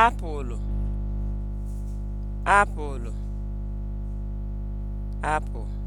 apụlụ apụlụ apụ